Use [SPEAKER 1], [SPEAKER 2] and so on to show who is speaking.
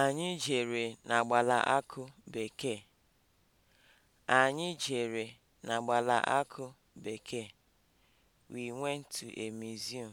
[SPEAKER 1] Anyị jere n'agbala akụ bekee. Anyị jere n'agbala akụ bekee. We went to a
[SPEAKER 2] museum.